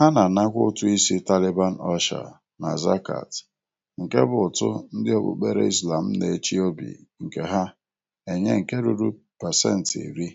Ha na-anakwa ụtụ isi Taliban Ọsha na Zakat, nke bụ ụtụ ndị okpukpere Islam na-echi obi nke ha enye nke ruru pasentị iri.